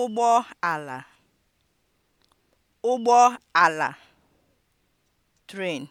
ụgbọ ala ụgbọ ala tren.